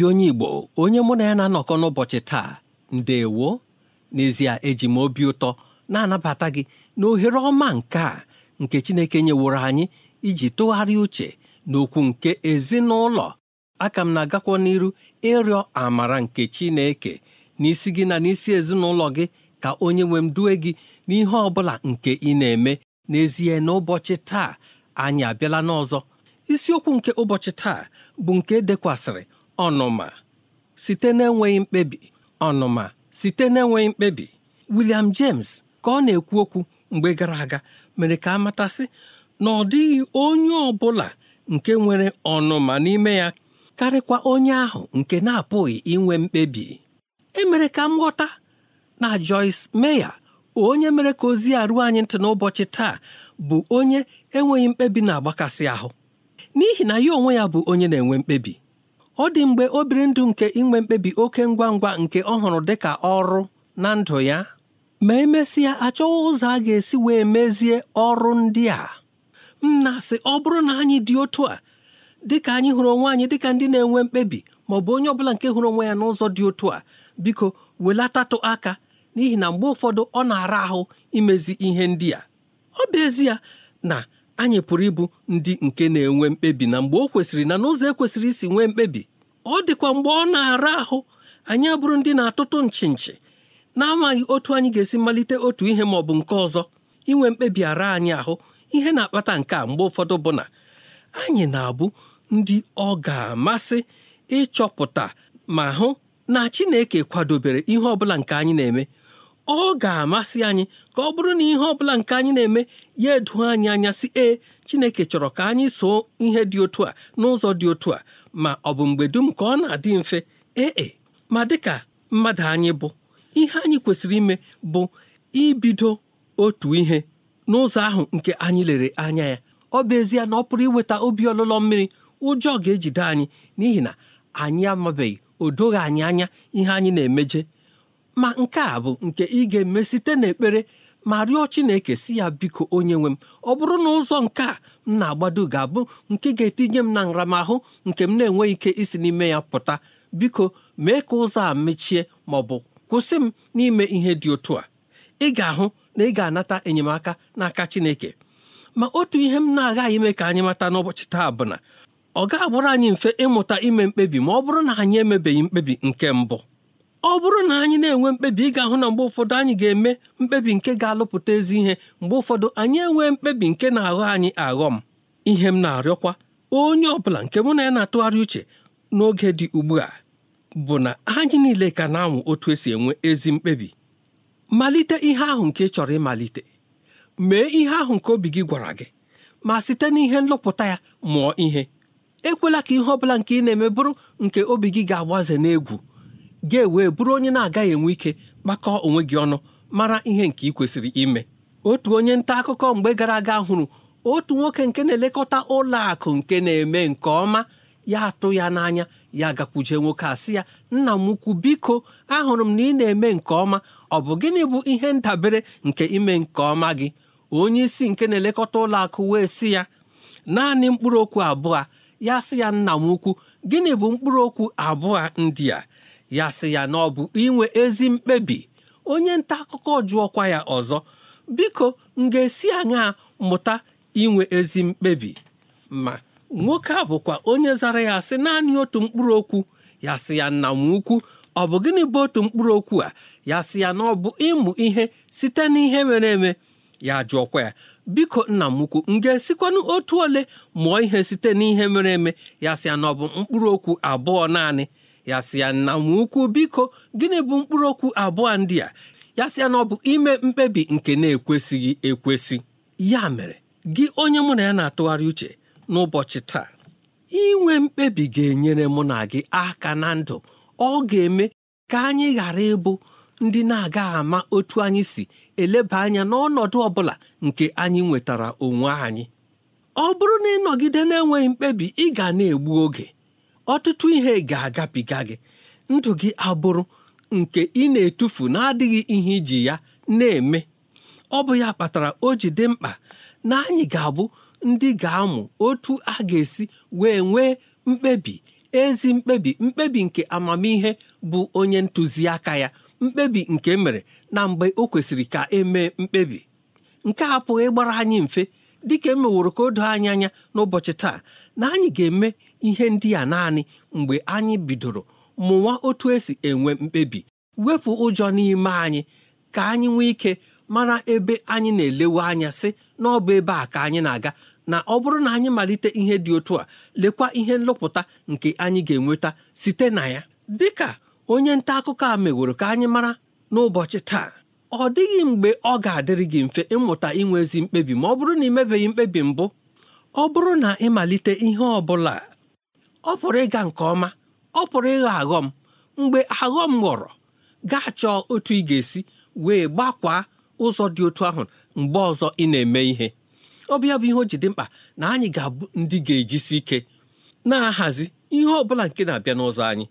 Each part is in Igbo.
ezi onye Igbo onye mụ na ya na-anọkọ n'ụbọchị taa ndewo n'ezie eji m obi ụtọ na-anabata gị na ohere ọma nke a nke Chineke nyeworo anyị iji tụgharịa uche n'okwu nke ezinụlọ aka m na-agakwa n'iru ịrịọ amara nke Chineke n'isi gị na n'isi ezinụlọ gị ka onye nwe m due gị n'ihe ọ bụla nke ị na-eme n'ezie n'ụbọchị taa anyị abịala n'ọzọ isiokwu nke ụbọchị taa bụ nke e dekwasịrị ọnụma site n'enweghị mkpebi ọnụma site n'enweghị mkpebi William James ka ọ na-ekwu okwu mgbe gara aga mere ka a matasị na ọ dịghị onye ọ bụla nke nwere ọnụma n'ime ya karịkwa onye ahụ nke na-apụghị inwe mkpebi emere ka m ghọta na Joyce Meya, onye mere ka ozi a ruo anyị ntị n'ụbọchị taa bụ onye enweghị mkpebi na-agbakasị ahụ n'ihi na ya onwe ya bụ onye na-enwe mkpebi ọ dị mgbe obiri ndụ nke inwe mkpebi oke ngwa ngwa nke ọ hụrụ dị ọrụ na ndụ ya ma emesịa achọghị ụzọ a ga-esi wee mezie ọrụ ndị a m na ọ bụrụ na anyị dị otu a dịka anyị hụrụ onwe anyị dịka ndị na-enwe mkpebi ma ọ bụ onye ọbụla nke hụrụ onwe ya n'ụzọ dị otu a biko welatatụ aka n'ihi na mgbe ụfọdụ ọ na-ara ahụ imezi ihe ndị a ọ bụ ezie na anyị pụrụ ịbụ ndị nke na-enwe mkpebi na mgbe o kwesịrị na n'ụzọ ekwesịrị isi nwee mkpebi ọ dịkwa mgbe ọ na-ara ahụ anyị abụrụ ndị na-atụtụ nchi nchi na-amaghị otu anyị ga-esi malite otu ihe ma ọ bụ nke ọzọ inwe mkpebi ara anyị ahụ ihe na-akpata nke a mgbe ụfọdụ bụ na anyị na-abụ ndị ọ ga-amasị ịchọpụta ma hụ na Chineke kwadobere ihe ọ bụla nke anyị na-eme ọ ga-amasị anyị ka ọ bụrụ na ihe ọ bụla nke anyị na-eme ya edu anyị anya si ee Chineke chọrọ ka anyị soo ihe dị otu a n'ụzọ dị otu a ma ọ bụ mgbe dum ka ọ na-adị mfe ee e, ma dịka mmadụ anyị bụ ihe anyị kwesịrị ime bụ ibido otu ihe n'ụzọ ahụ nke anyị lere anya ya ọ bụ ezie na ọ pụrụ iweta obi ọlụlọ mmiri ụjọ ga-ejide anyị n'ihi na anyị amabeghị o doghị anyị anya ihe anyị na-emeje ma nke a bụ nke ị ga-eme site n'ekpere ma rịọ Chineke si ya biko onye nwe m ọ bụrụ na ụzọ nke a m na-agbado ga-abụ nke ga-etinye m na nramahụ nke m na-enweghị ike isi n'ime ya pụta biko mee ka ụzọ a mechie ma ọ bụ kwụsị m n'ime ihe dị otu a ị ga-ahụ na ị ga-anata enyemaka n'aka Chineke ma otu ihe m na-agaghị ime ka anyị mata n'ụbọchị taa bụ na ọ ga abụrụ anyị mfe ịmụta ime mkpebi ma ọ bụrụ na anyị emebeghị mkpebi nke mbụ ọ bụrụ na anyị na-enwe mkpebi ị ga-ahụ na mgbe ụfọdụ anyị ga-eme mkpebi nke ga-alụpụta ezi ihe mgbe ụfọdụ anyị enwee mkpebi nke na-aghọ anyị aghọ m ihe m na-arịọkwa onye ọbụla nke mụ na ya na-atụgharị uche n'oge dị ugbu a bụ na anyị niile ka na anwụ otu esi enwe ezi mkpebi malite ihe ahụ nke ị chọrọ ịmalite mee ihe ahụ nke obi gị gwara gị ma site n'ihe nlụpụta ya mụọ ihe ekwela ka ihe ọ bụla nke ị na-eme bụrụ nke obi gị ga-agbaze n'egwu ga-ewe bụrụ onye na-agaghị enwe ike kpakọọ onwe gị ọnụ mara ihe nke ị kwesịrị ime otu onye nta akụkọ mgbe gara aga hụrụ otu nwoke nke na-elekọta ụlọ akụ nke na-eme nke ọma ya atụ ya n'anya ya gakwuje nwoke asị ya nna m ukwu biko ahụrụ m na ị na-eme nke ọma ọ bụ gịnị bụ ihe ndabere nke ime nke ọma gị onye isi nke na-elekọta ụlọ akụ wee sị ya naanị mkpụrụ okwu abụọ ya sị ya nna m ukwu gịnị bụ mkpụrụ okwu abụọ ndị a ya sị ya na ọ bụ inwe ezi mkpebi onye nta akụkọ jụọkwa ya ọzọ biko m ga-esi aṅa mụta inwe ezi mkpebi ma nwoke a bụkwa onye zara ya sị naanị otu mkpụrụ okwu ya sị ya nna m ukwu ọ bụ gịnị bụ otu mkpụrụ okwu a ya sị ya na ọ bụ ịmụ ihe site n'ihe mere eme ya jụọkwa ya biko nna m ukwu m ga-esikwanụ otu ole mụọ ihe site n'ihe mere eme ya sị ya na ọ bụ mkpụrụ okwu abụọ naanị ya sị ya nna m ukwu biko gịnị bụ mkpụrụ okwu abụọ ndị a ya sị ya na ọ bụ ime mkpebi nke na-ekwesịghị ekwesị ya mere gị onye mụ na ya na-atụgharị uche n'ụbọchị taa inwe mkpebi ga-enyere mụ na gị aka na ndụ ọ ga-eme ka anyị ghara ịbụ ndị na aga ama otu anyị si eleba anya n'ọnọdụ ọ bụla nke anyị nwetara onwe anyị ọ bụrụ na ịnọgide na-enweghị mkpebi ị ga na-egbu oge ọtụtụ ihe ga-agabiga gị ndụ gị abụrụ nke ị na-etufu na-adịghị ihe iji ya na-eme ọ bụ ya kpatara o ji dị mkpa na anyị ga-abụ ndị ga-amụ otu a ga-esi wee nwee mkpebi ezi mkpebi mkpebi nke amamihe bụ onye ntụziaka ya mkpebi nke e mere na mgbe o kwesịrị ka emee mkpebi nke a apụghị ịgbara anyị mfe dịka emeworo ka o doo anyị anya n'ụbọchị taa na anyị ga-eme ihe ndị a naanị mgbe anyị bidoro mụwa otu esi enwe mkpebi wepụ ụjọ n'ime anyị ka anyị nwee ike mara ebe anyị na-elewe anya sị na ọ bụ ebe a ka anyị na-aga na ọ bụrụ na anyị malite ihe dị otu a lekwa ihe nlọpụta nke anyị ga-enweta site na ya dịka onye nta akụkọ a meworo ka anyị mara n'ụbọchị taa ọ dịghị mgbe ọ ga-adịrị gị mfe ịmụta inwe ezi mkpebi ma ọ bụrụ na ị mebeghị mkpebi mbụ ọ bụrụ na ịmalite ihe ọ bụla ọ pụrụ ịga nke ọma ọ pụrụ ịghọ aghọm mgbe aghọm ghọrọ gaa chọọ otu ị ga-esi wee gbakwaa ụzọ dị otu ahụ mgbe ọzọ ị na-eme ihe ọbịa bụ ihe o ji dị mkpa na anyị ga-abụ ndị ga-ejisi ike na-ahazi ihe ọ bụla nke na-abịa n'ụzọ anyị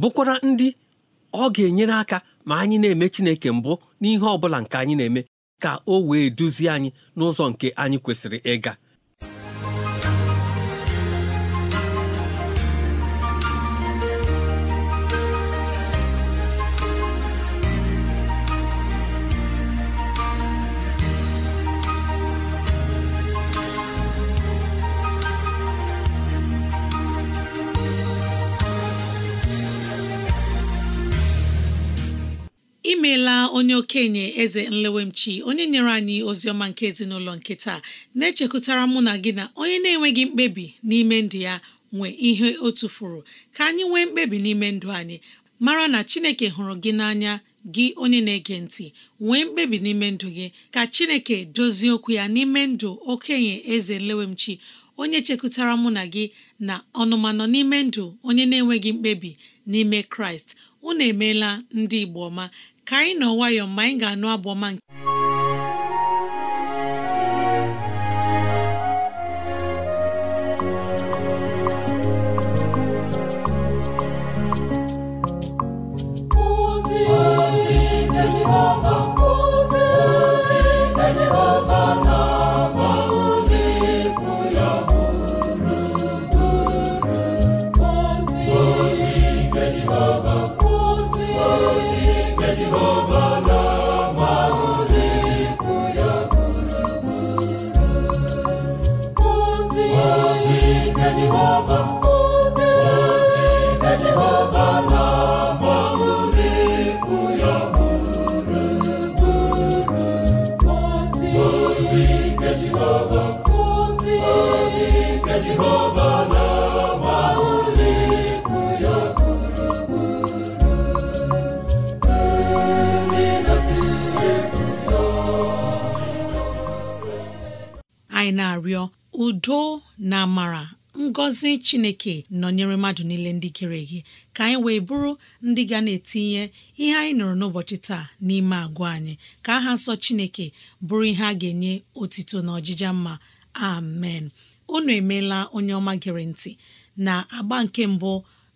bụkwara ndị ọ ga-enyere aka ma anyị na-eme Chineke mbụ n'ihe ọ bụla nke anyị na-eme ka o wee duzie anyị n'ụzọ nke anyị kwesịrị ịga imeela onye okenye eze nlewemchi onye nyere anyị ozi ọma nke ezinụlọ nke taa na echekụtara mụ na gị na onye na-enweghị mkpebi n'ime ndụ ya nwe ihe o tufuru ka anyị nwee mkpebi n'ime ndụ anyị mara na chineke hụrụ gị n'anya gị onye na-ege ntị nwee mkpebi n'ime ndụ gị ka chineke dozie okwu ya n'ime ndụ okenye eze nlewemchi onye chekụtara mụ na gị na ọnụmanọ n'ime ndụ onye na-enweghị mkpebi n'ime kraịst unu emeela ndị igbo ọma ka anyị nọ nwayọọ mgbe anyị ga-anụ abụ ọma nke udo na amara ngọzi chineke nọnyere mmadụ niile ndị kere gị ka anyị wee bụrụ ndị ga na-etinye ihe anyị nụrụ n'ụbọchị taa n'ime agwa anyị ka aha nsọ chineke bụrụ ihe a ga-enye otito na ọjịja mma amen unu emeela onye ọma gere ntị na agba nke mbụ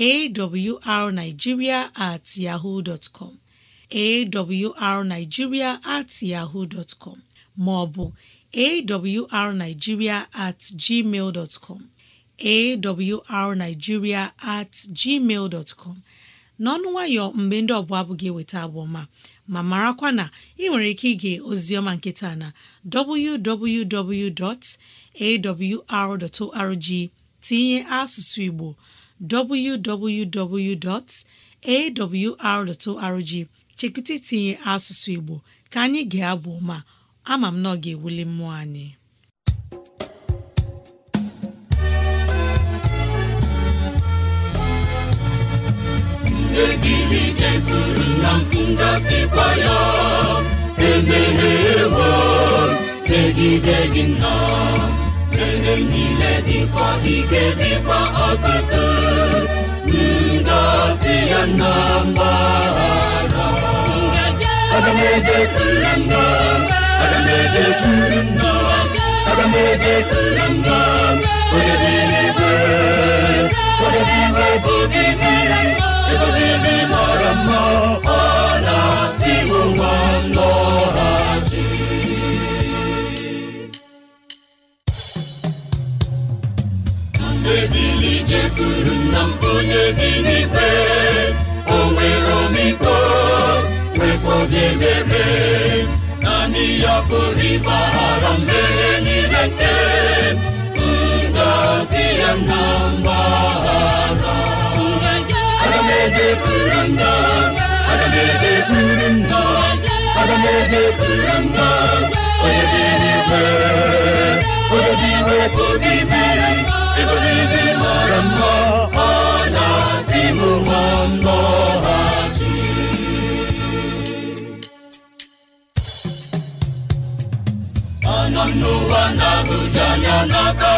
awrnigeria at yahoo dot com awrnigeria at yahoo dot com maọbụ arigiria at gmail dot com at gmail dot n'ọnụ nwayọ mgbe ndị ọbụla abụghị eweta abụ ọma ma marakwa na ị nwere ike ige ozioma nkịta na www.awr.org tinye asụsụ Igbo www.awr.org chekụta itinye asụsụ Igbo ka anyị ga-abụ ma ama m na ọ ga-ewuli mmụọ anyị egidi jekwuru na ngọzikwa ya emeghewo megide gị nnọọ Eze niile dịkwa ike dịkwa ọtụtụ ngọzi ya na mgbaghara aga m ejekwuru nna aga m ejekwuru nna aga m ejekwuru nna ebili jekwuru nna onye bi n'ikpe o nwere omiko nwekwa obi ebere naanị ya pụrụ ịgbaghara mmehie niile nke ya na mgbaghara aga nna aga onye dị ọ na-asị m ṅụọ ndọghachi anọ m n'ụwa na n'aka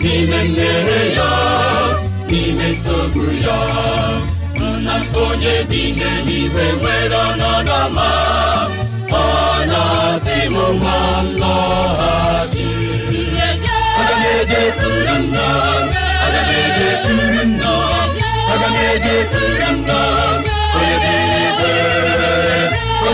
n'ime mmehie ya n'ime nsogbu ya nna onye bi n'eluigwe nwere ọnọdụ ọ na-asị m nwa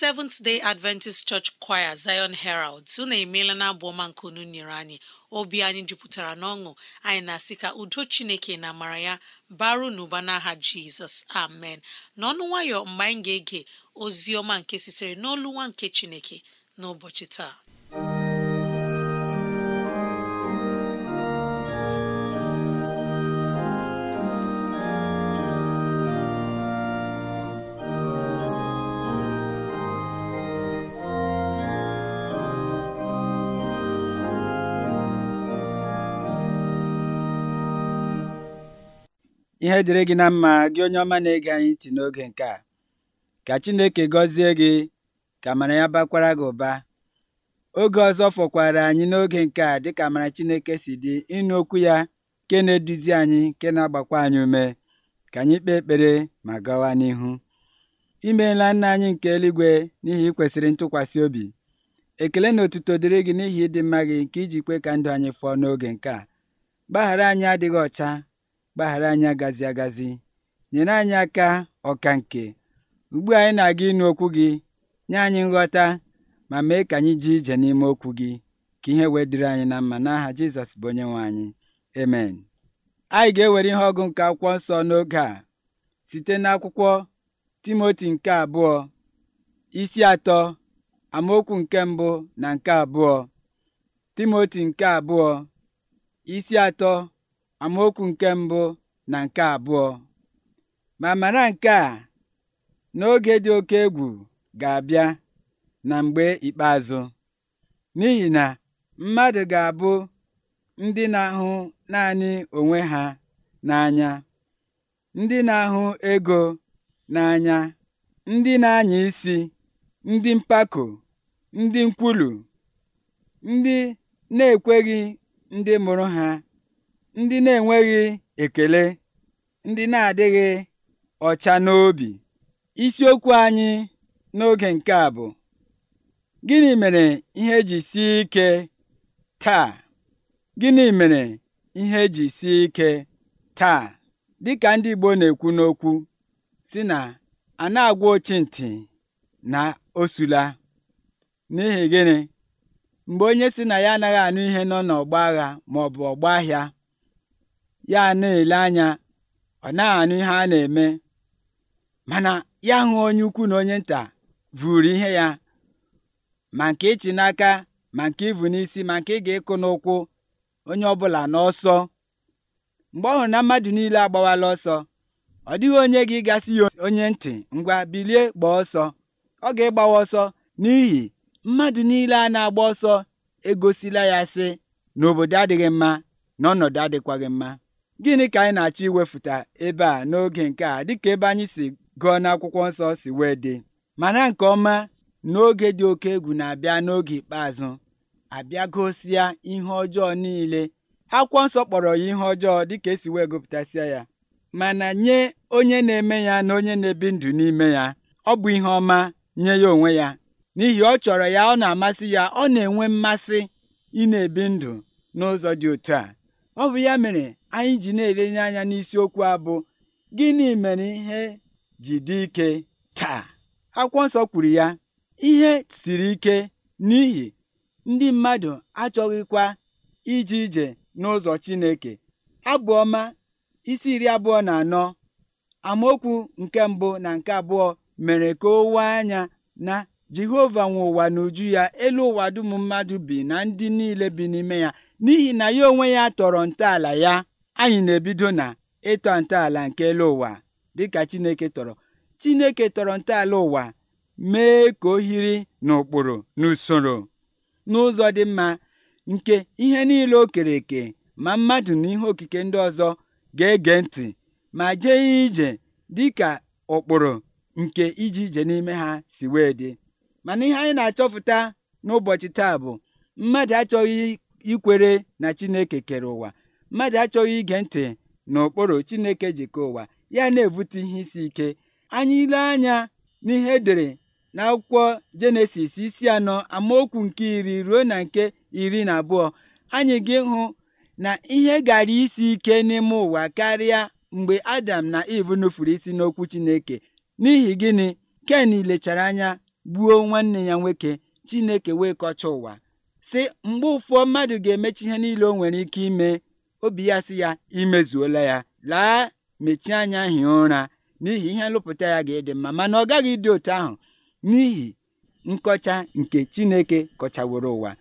Seventh Day Adventist Church Choir Zion Herald unu emeela na abụ ọma nke unu nyere anyị obi anyị jupụtara n'ọṅụ anyị na-asị ka udo Chineke na amara ya baru n'ụba n'aha Jizọs amen n'ọnụ nwayọ mgbe anyị ga-ege ozi ọma nke sitere n'olu nwa nke Chineke n'ụbọchị taa Ihe dịrị gị na mma gị onye ọma na-ege anyị ntị n'oge nke a ka Chineke gọzie gị ka amara ya bakwara gị ụba oge ọzọ fọkwara anyị n'oge nke a dịka amara Chineke si dị ịnụ okwu ya nke na-eduzi anyị nke na-agbakwa anyị ume ka anyị kpee ekpere ma gawa n'ihu imeela nna anyị nke eluigwe n'ihi ikwesịrị ntụkwasị obi ekele na otuto dịrị gị n'ihi ịdị mma gị nke iji kwe ka ndụ anyị fọọ n'oge nke a gbaghara anyị adịghị ọcha gbaghara anyị agazi agazi nyere anyị aka ọka nke ugbu anyị na-aga ịnụ okwu gị nye anyị nghọta ma mee ka anyị ji ije n'ime okwu gị ka ihe wee dịrị anyị na mma n'aha Jizọs bụ onye nwe anyị amen anyị ga-ewere ihe ọgụ nke akwụkwọ nsọ n'oge a site n'akwụkwọ Timoti nke abụọ isi atọ amaokwu nke mbụ na nke abụọ Timoti nke abụọ isi atọ amaokwu nke mbụ na nke abụọ ma mara nke a n'oge dị oke egwu ga-abịa na mgbe ikpeazụ n'ihi na mmadụ ga-abụ ndị na-ahụ naanị onwe ha n'anya ndị na-ahụ ego n'anya ndị na-anya isi ndị mpako ndị nkwulu ndị na-ekweghị ndị mụrụ ha ndị na-enweghị ekele ndị na-adịghị ọcha n'obi isiokwu anyị n'oge nke a bụ gịnị mere ihe e ji si ike taa gịnị mere ihe e ji sie ike taa dịka ndị Igbo na-ekwu n'okwu si na a na-agwa ochintị na osula n'ihi gịnị mgbe onye si na ya anaghị anụ ihe nọ n'ọgba agha ma ọ ọgba ahịa ya na-ele anya ọ na-anụ ihe a na-eme mana ya hụ onye ukwu na onye nta vụrụ ihe ya ma nke ịchị n'aka ma nke ịvụ n'isi ma nke ị ga-ịkụ n'ụkwụ onye ọbụla n'ọsọ mgbe ọ hụrụ na mmadụ niile agbawala ọsọ ọ dịghị onye gị gasị ya onye ntị ngwa bilie gbaa ọsọ ọ ga-ịgbawa ọsọ n'ihi mmadụ niile a na-agba ọsọ egosila ya sị n'obodo adịghị mma na ọnọdụ adịkwaghị mma gịnị ka anyị na-achọ iwefụta ebe a n'oge nke a dịka ebe anyị si gụọ n'akwụkwọ nsọ si wee dị mana nke ọma n'oge dị oke egwu na-abịa n'oge ikpeazụ abịa gosia ihe ọjọọ niile akwụkwọ nsọ kpọrọ ya ihe ọjọọ dịka esi wee gụpụtasịa ya mana nye onye na-eme ya na onye na-ebi ndụ n'ime ya ọ bụ ihe ọma nye ya onwe ya n'ihi ọ chọrọ ya ọ na-amasị ya ọ na-enwe mmasị ị na-ebi ndụ n'ụzọ dị otu a ọ bụ ya mere anyị ji na-elenye anya n'isiokwu a bụ gịnị mere ihe ji dị ike taa akwụkwọ nsọ kwuru ya ihe siri ike n'ihi ndị mmadụ achọghịkwa ije ije n'ụzọ Chineke Abụọma isi iri abụọ na anọ amaokwu nke mbụ na nke abụọ mere ka o wee anya na Jehova nwe ụwa n'uju ya elu ụwa dum mmadụ bi na ndị niile bi n'ime ya n'ihi na ya onwe ya tọrọ ntọala ya anyị na-ebido na ịtọ ntọala nke elu ụwa dịka Chineke tọrọ Chineke tọrọ ntọala ụwa mee ka o hiri n'ụkpụrụ n'usoro n'ụzọ dị mma nke ihe niile o kere eke ma mmadụ na ihe okike ndị ọzọ ga-ege ntị ma jee ije dịka ụkpụrụ nke iji ije n'ime ha si wee dị mana ihe anyị na-achọpụta n'ụbọchị taa bụ mmadụ achọghị ikwere na Chineke kere ụwa mmadụ achọghị ige ntị n'ụkpụrụ Chineke jikọ ụwa ya na-ebute ihe isi ike anyị ile anya n'ihe edere n'akwụkwọ Jenesis isi anọ amaokwu nke iri ruo na nke iri na abụọ anyị gị hụ na ihe gara isi ike n'ime ụwa karịa mgbe Adam na Eve nufuru isi n'okwu Chineke n'ihi gịnị Ken lechara anya gbuo nwanne ya nwoke Chineke wee kọcha ụwa si mgbe ụfọ mmadụ ga-emechi ihe niile o nwere ike ime obi ya sị ya imezuola ya laa mechie anya hie ụra n'ihi ihe nlụpụta ya ga-ịdị mma mana ọ gaghị ịdị otu ahụ n'ihi nkọcha nke Chineke kọchaworo ụwa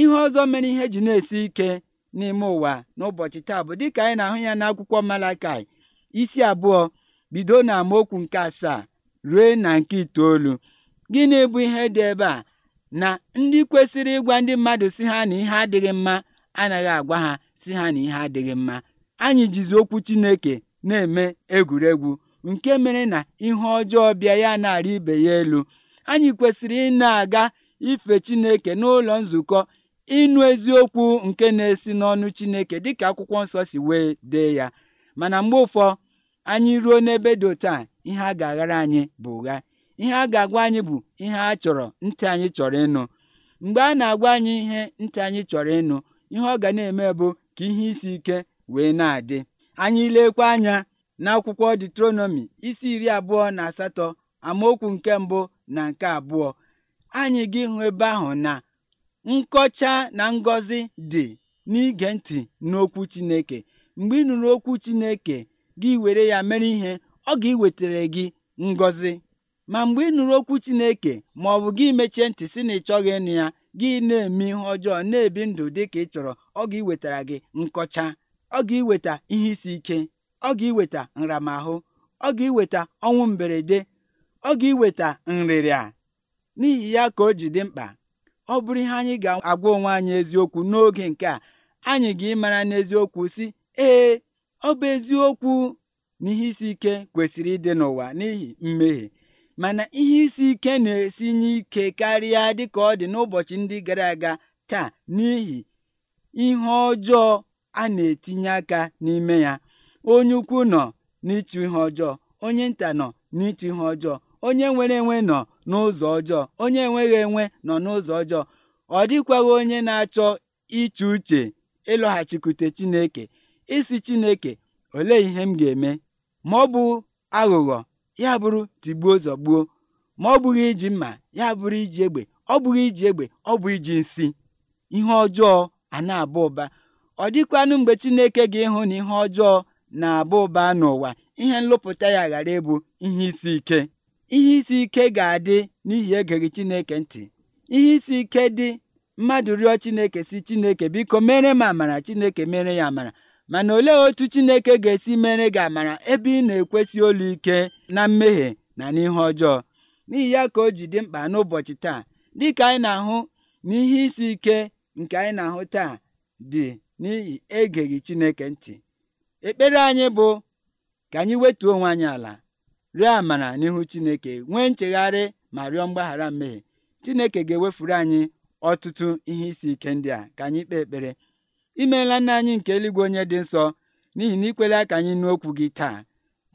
ihe ọzọ mere ihe ji na-esi ike n'ime ụwa n'ụbọchị taa bụ dịka anyị na-ahụ ya n'akwụkwọ Malakai isi abụọ bido na amaokwu nke asaa ruo na nke itoolu gịnị bụ ihe dị ebe a na ndị kwesịrị ịgwa ndị mmadụ si ha na ihe adịghị mma anaghị agwa ha si ha na ihe adịghị mma anyị jizi okwu Chineke na-eme egwuregwu nke mere na ihe ọjọọ bịa ya na-arị ibe ya elu anyị kwesịrị ị na-aga ife Chineke n'ụlọ nzukọ ịnụ eziokwu nke na-esi n'ọnụ chineke dịka akwụkwọ nsọ si wee dee ya mana mgbe ụfọ anyị ruo n'ebe dị otu a ihe a ga-aghara anyị bụ ụgha ihe a ga-agwa anyị bụ ihe a chọrọ ntị anyị chọrọ ịnụ mgbe a na-agwa anyị ihe ntị anyị chọrọ ịnụ ihe ọ ga na-eme bụ ka ihe isi ike wee na-adị anyị lekwa anya n'akwụkwọ detronomi isi iri abụọ na asatọ amaokwu nke mbụ na nke abụọ anyị gị hụ ebe ahụ na nkọcha na ngọzi dị n'ige ntị n'okwu Chineke mgbe ị nụrụ okwu Chineke gị were ya mere ihe ọ ga ewetara gị ngọzi ma mgbe ị nụrụ okwu Chineke ma ọ bụ gị mechie ntị si na ị chọghị ịnụ ya gị na-eme ihe ọjọọ na-ebi ndụ dị ka ị chọrọ ọ ga ewetara gị nkọcha ọ ga-iweta ihe isi ike ọ ga eweta nramahụ ọ ga-iweta ọnwụ mberede ọ ga-iweta nrịrịa n'ihi ya ka o ji dị mkpa ọ bụrụ ihe anyị ga-agwa onwe anyị eziokwu n'oge nke a anyị ga-ịmara n'eziokwu si ee ọ bụ eziokwu na ihe isi ike kwesịrị ịdị n'ụwa n'ihi mmehie mana ihe isi ike na-esinye ike karịa ka ọ dị n'ụbọchị ndị gara aga taa n'ihi ihe ọjọọ a na-etinye aka n'ime ya onye ukwu nọ n'ịchụ ihe ọjọọ onye nta nọ n'ịchụ ihe ọjọọ onye nwere enwe nọ n'ụzọ ọjọọ onye enweghị enwe nọ n'ụzọ ọjọọ ọ dịkwaghị onye na-achọ iche uche ịlọghachikwute Chineke isi Chineke olee ihe m ga-eme ma ọ bụ aghụghọ ya bụrụ tigbuo zọgbuo ma ọ bụghị iji mma ya bụrụ iji egbe ọ bụghị iji egbe ọ bụ iji nsị ihe ọjọọ a na-aba ụba ọ dịkwanụ mgbe Chineke ga-ịhụ na ihe ọjọọ na-aba ụba n'ụwa ihe nlụpụta ya ghara ịbụ ihe isi ike ihe isi ike ga-adị n'ihi egeghị Chineke ntị ihe isi ike dị mmadụ rịọ Chineke si Chineke biko mere m amara Chineke mere ya amara mana olee otu Chineke ga-esi mere gị amara ebe ị na-ekwesị olu ike na mmehie na n'ihe ọjọọ n'ihi ya ka o ji dị mkpa n'ụbọchị taa dịka anyị na-ahụ na ihe isi ike nke anyị na-ahụ taa dị n'ihi egeghị Chineke ntị ekpere anyị bụ ka anyị wetuo onwe anyị ala rịọ amara n'ihu Chineke nwee nchegharị ma rịọ mgbaghara mmehie Chineke ga-ewefuru anyị ọtụtụ ihe isi ike ndị a ka anyị kpee ekpere imeela nna anyị nke eluigwe onye dị nsọ n'ihi na ikwela ka anyị nụ okwu gị taa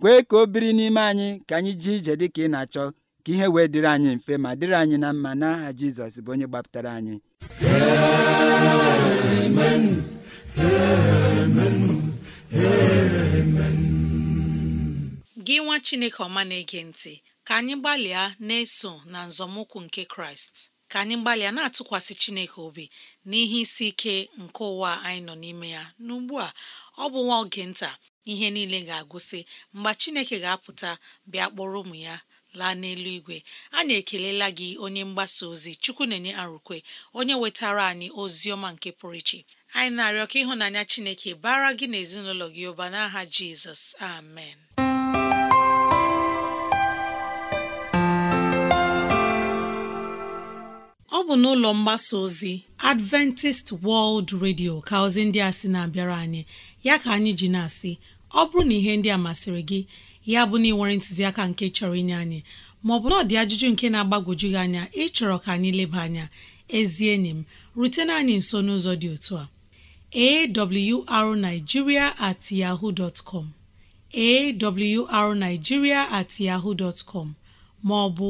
kwee ka o biri n'ime anyị ka anyị ji ije dị ka ị na-achọ ka ihe wee dịrị anyị mfe ma dịrị anyị na mma n'aha Jizọs bụ onye gbapụtara anyị Amen. Amen. Amen. gị nwa chineke ọma na-ege ntị ka anyị gbalịa na-eso na nzọmụkwụ nke kraịst ka anyị gbalịa na-atụkwasị chineke obi n'ihe isi ike nke ụwa anyị nọ n'ime ya n'ugbu a ọ bụ nwa oge nta ihe niile ga-agụsị mgbe chineke ga-apụta bịa kpọrọ ụmụ ya laa n'eluigwe anyị ekelela gị onye mgbasa ozi chukwu na-enye arụkwe onye wetara anyị ozi ọma nke pụrụ iche anyị na-arịọ ka ịhụnanya chineke bara gị na ezinụlọ gị ụba n'aha jizọs amen ọ bụ n'ụlọ mgbasa ozi Adventist World Radio ka ozi ndị a sị na-abịara anyị ya ka anyị ji na-asị ọ bụrụ na ihe ndị a masịrị gị ya bụ na ị nwere ntụziaka nke chọrọ inye anyị maọbụ na ọ dị ajụjụ nke na-agbagwoju gị anya ịchọrọ ka anyị leba anya ezi enyi m rutena anyị nso n'ụzọ dị otu a awrnigeria at yaho dot com awrnigeria at yaho dot com maọbụ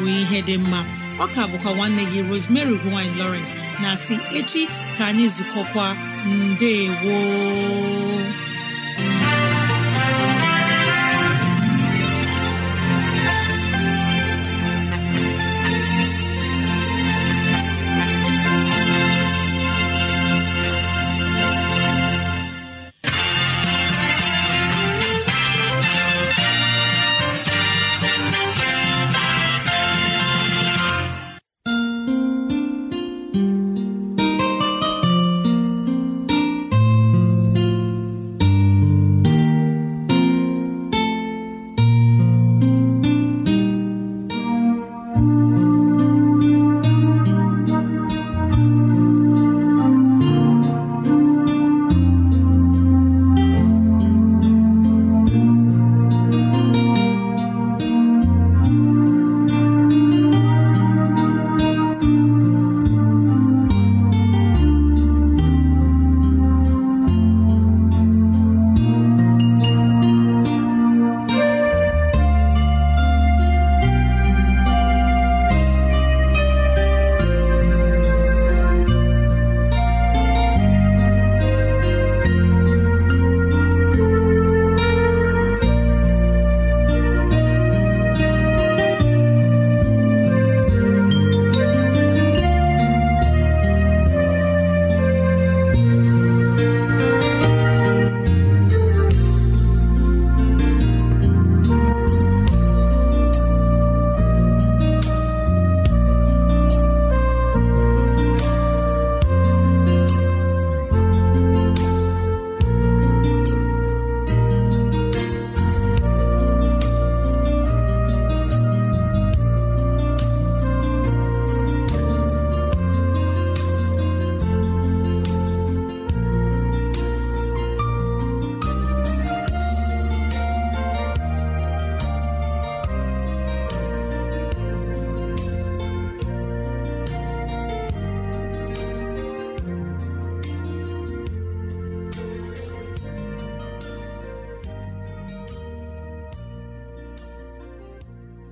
bụ ihe dị mma ka bụkwa nwanne gị Rosemary gine Lawrence na si echi ka anyị zukọkwa mbe gboo